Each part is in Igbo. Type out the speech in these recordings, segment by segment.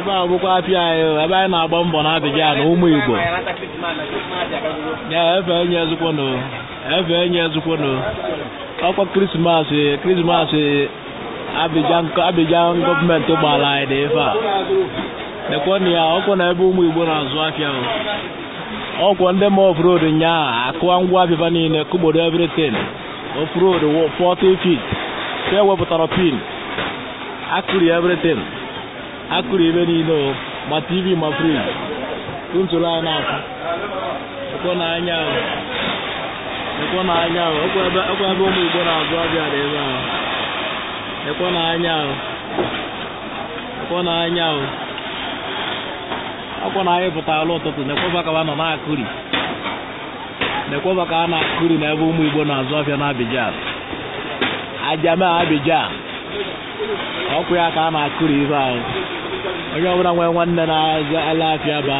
ebe a bụkwa apịa anyị ebe anyị na-agba mbọ na adịghị ya na ụmụ Igbo ya efe enye ezukwono efe enye ezukwono ọkwa krismasị krismasị abịjan gọọmenti gbara anyị dị ife a dekwana ya ọkwa na ebe ụmụ Igbo na-azụ afịa ọkwa ndị ma ofrod nyaa akụwa ngwa abịba niile kụgbodo everything ofrod 40 feet ka ewepụtara pin akụri everything akụrụ ebe niile ma tv ma friji ntụrụ anyị akụ ekwe n'anya ekwe n'anya ekwe ebe ụmụ igbo na azụ abịa na ebe ahụ ekwe n'anya ekwe n'anya akwa na anyị alụ ụtụtụ nekweba ka nọ na-akụri nekweba ka a na-akụri ebe ụmụ igbo na-azụ afịa na Abidjan ajame Abidjan ọkụ ya ka a na-akụri ibe ahụ onye ọbụla nwere nwanne na-aza alafịa ba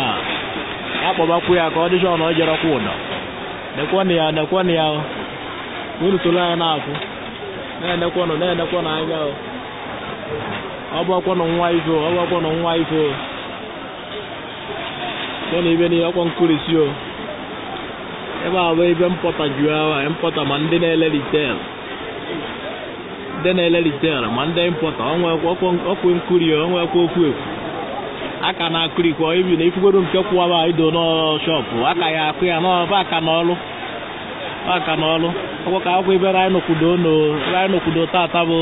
akpọbakwu ya ka ọ dịcha ọnụ ojerekwa ụdọ nekwenụ ya nekwenụ ya na-akwụ na-enekwenụ na-enekwenụ anya ọgbakwenụ nwa ife nwa ife na ibe ọkwa a bụ ebe mpọta juru mpọta ma ndị na-ele ritel ndị na okwu aka na-akụrụ ikwe ibi na ifukwere nke kwụwaba ido n'shọpụ aka ya akụ ya n'ọba aka n'ọlụ aka n'ọlụ ọkwọ ka akwụkwọ ebe raịnokwudo tata bụ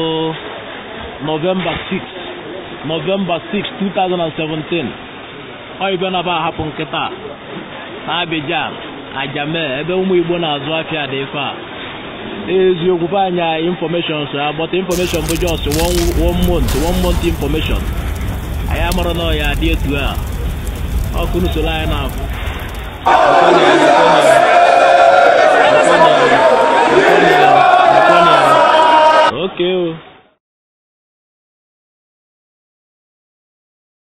novemba 6 novemba 6 2017 ọ ibe na ba ahapụ nkịta na abijan Ajame ebe ụmụ Igbo na-azụ afịa dị ife a eziokwu anyị infọmeshọn so agbata infọmeshọn bụ jos one month one month infọmeshọn anyị amụrụ na ọya dị etu a ọkụ n'usoro anyị na-abụ oke